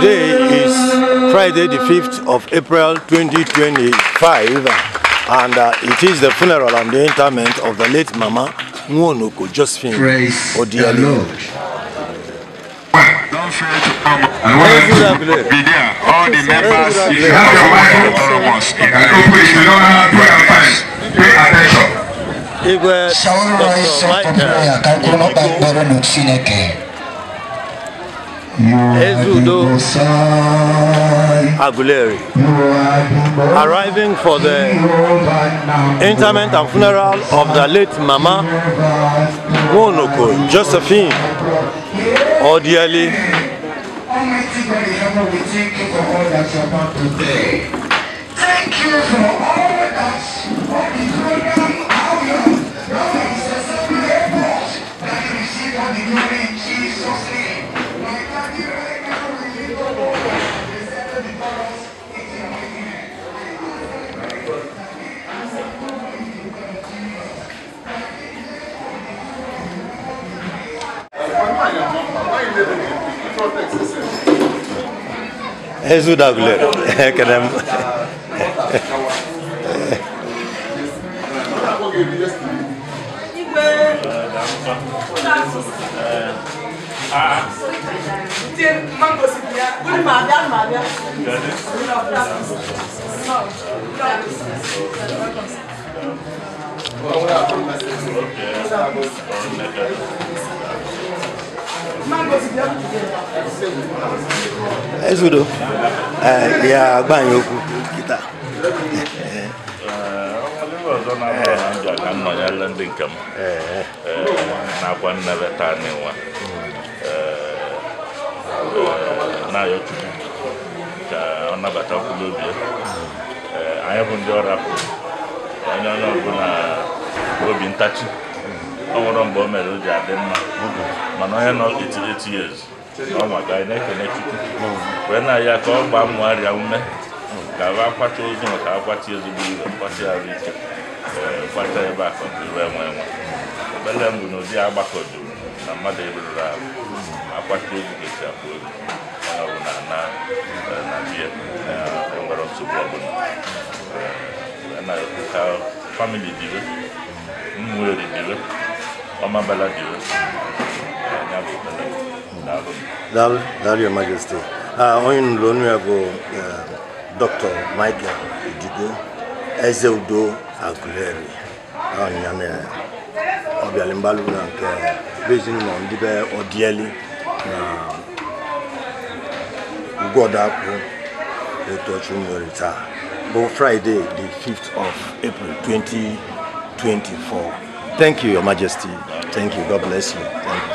Today is Friday the 5th of April 2025 and uh, it is the funeral and the interment of the late Mama Nwonuko Josephine Odiale. Don't fail to come. I want to be there. All the members, if you have your mind, all of us. And if you don't have prayer fast, pay attention. Igwe Dr. Michael Ikiko Ezudo Aguleri. Arriving for the interment and funeral of the late Mama Monoko Josephine Odieli. Thank you for all. Elles jouent dans ezudo ya agbanye okwu kịta ọzọ na-abụ na nke m nakwa nnebe taa n'ịnwa na-ayọ ka ọ nabata kwụrụ obi anyị bụ ndị ọrapụ onye onye ọbụla obi ntachi ọ nwụrụ mgbe o mere o ji adị mma mana onye nọ 88 years ma ga anyị na-ekene chukwu wee na ya ka ọ gbaa mmụ arịa ume ka a ozi ozu maka akwacha ezigbo iwe kwacha arụ ike kwacha ebe a ka iwe nwe mbụ na ụdị agbakọ juru na mmadụ eruru ahụ akwacha ozu esi ozu na na enwere nsogbu ọbụla ka Mama Balladio. Dal, Dal, Your Majesty. Oyin Lonuago, Dr. Michael Idigo, Ezeudo Aguleri, Onyame, Obialimbalu na nke Bezi na ndibe Odieli na Ugodakwu Etochu nwere taa bụ Friday the 5th of April 2024. Thank you, Your Majesty. Thank you. God bless you.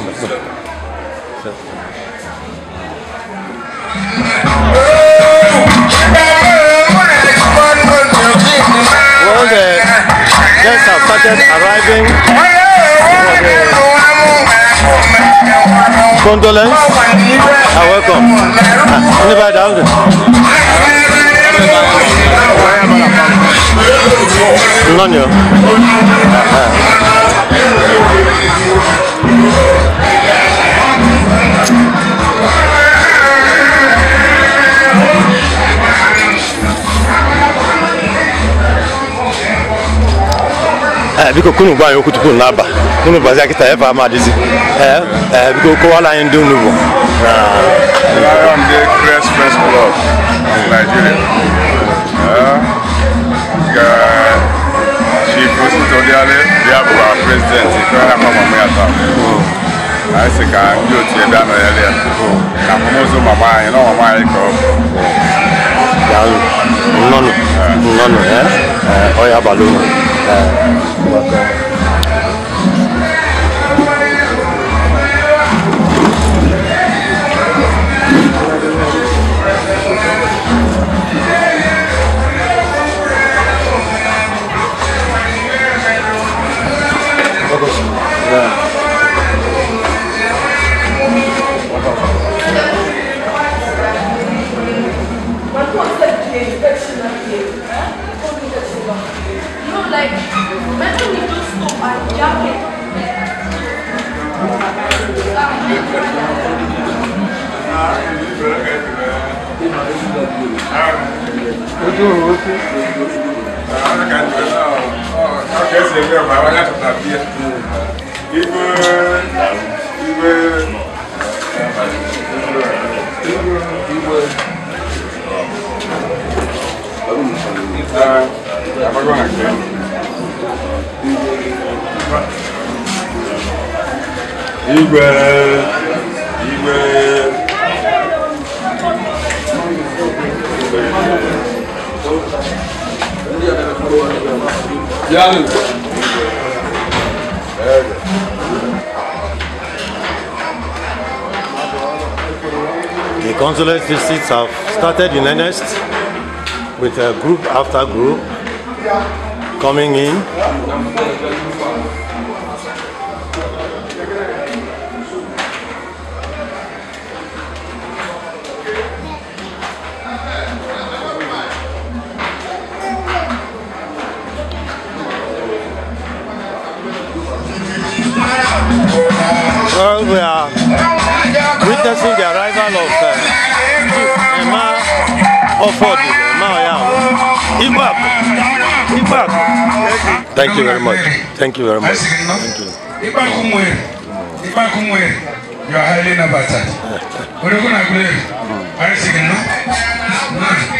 Well, the guests have started arriving condolence and welcome. Anybody down there? None of you. Eh, biko kunu gba yòókù tukunu n'aba kunu bazi akita ẹfa ama adizi ẹ eh, ẹ eh, biko kó wàhálà yẹn dùn nùbọ. I am the greatest first club in Nigeria. Chief Ositodiale, the Abuja president, Ìkọ́lá Mama Yata. A yẹ sẹ ka ndị otu ebe a nọ ya lẹ. Na mọmọzọ mama anyị, na mama anyị kọ. Yàrá nnọnụ nnọnụ ẹ ọ ya abalị ụmụ. É, tá, bacana. ojú òun ó kú. àwọn akẹ́kọ̀ọ́ náà ọ̀ kẹ́sì ẹgbẹ́ ọ̀bà wọn ibu, ibu, ibu, ibu, ibu, ibu, ibu, ibu, ibu The consulate visits have started in earnest with a group after group coming in. affordable. Now yeah. Ibak. Thank you very much. Thank you very much. Thank you. Hmm. You are highly innovative. What are you going to do? Are you hmm.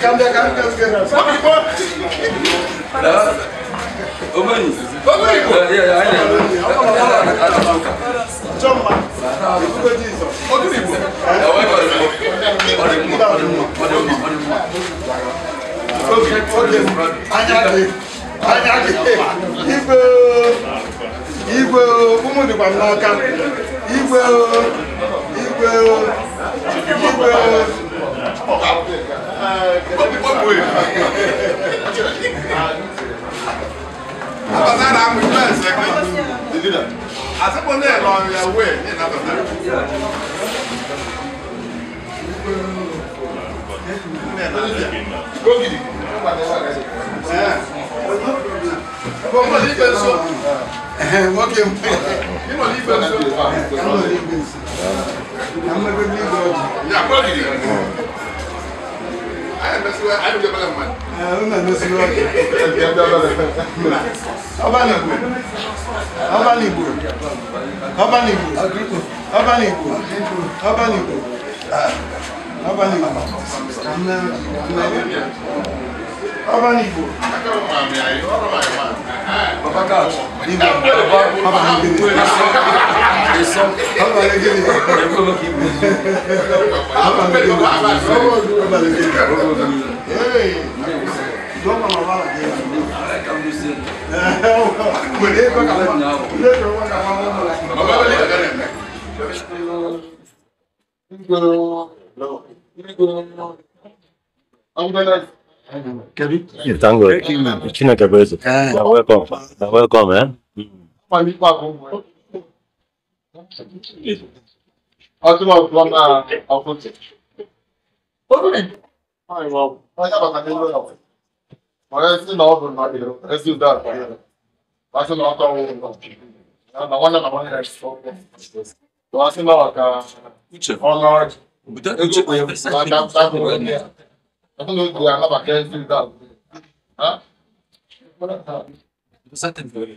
Cambia, cambia, cambia. Obanyi. Obanyi. Yeah, yeah, I know. Chomba. Ukuko jizo. Ogiribo. Ewe kwa ribo. Orimu, orimu, orimu, orimu. Okay, okay. Anyage. Anyage. Igwe. Igwe. Umu dikwa n'aka. Igwe. Igwe. Igwe. Igwe. Abasada mu ìlú ẹ̀sẹ̀ kan. Àsìkò náà lọ ìyàwó ẹ̀ ní ìnàbàtà. Gógìdì. Gbogbo ní ìgbẹ́ nsọ. Wọ́n kì í mú. Nínú ní ìgbẹ́ nsọ. Nínú ní ìgbẹ́ nsọ. Nínú ní ìgbẹ́ nsọ. Yà gbọ́dìdì siwa ayi bɛ bala ma. ɛɛ n nana siwa kɛ. ɛɛ bɛ bala ma. aw b'a nibu aw b'a nibu aw b'a nibu aw b'a nibu aw b'a nibu aw b'a nibu na na aw b'a nibu. baba ka nibu baba ka nibu. Isso é. Eu coloquei música. Toma uma bala dentro. Mulher pra acabar. Mulher pra acabar. É, uma bala ali, galera. It's English. It's not a person. Now welcome. Now welcome, man. É? Mm. Akıl al lan ha. Akıl çek. Onu ne? Hayır vav. Hayır bak hadi böyle yap. Bana sizin ne olur lan diyor. Rezil dar. Başka ne yapalım oğlum. Ya navanla navanla ders. Doğasın da bak ha. Üçe. Onlar. Bu da üçe. Ben ben ben böyle. Bakın öyle duyarlar bak. Rezil dar. Ha? Zaten böyle.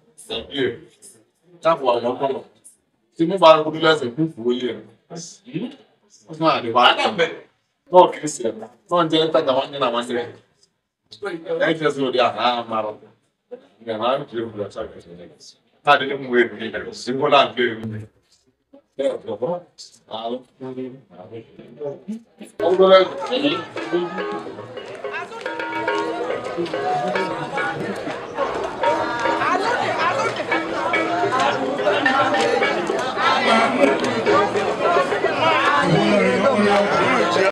Sẹ́kẹ̀ tí mo bá rúdú lẹ́sẹ̀ fún ìfowóyè rẹ̀. Ó tún àdé wa. Náà kì ṣe ẹ̀rọ. Náà jẹ́ tájà wọn nínú àwọn ṣẹlẹ̀. Ẹ̀yìn tí ó sì lòdì àná àmàrọ̀. Ìgbàlá ń jẹ́ òkúta ṣàgbẹ̀ ṣẹlẹ̀. Táàdé ní mo èrò nílẹ̀ sí Bọ́lá ń gbé èrò nílẹ̀. Ọgbọ́n lẹ́yìn.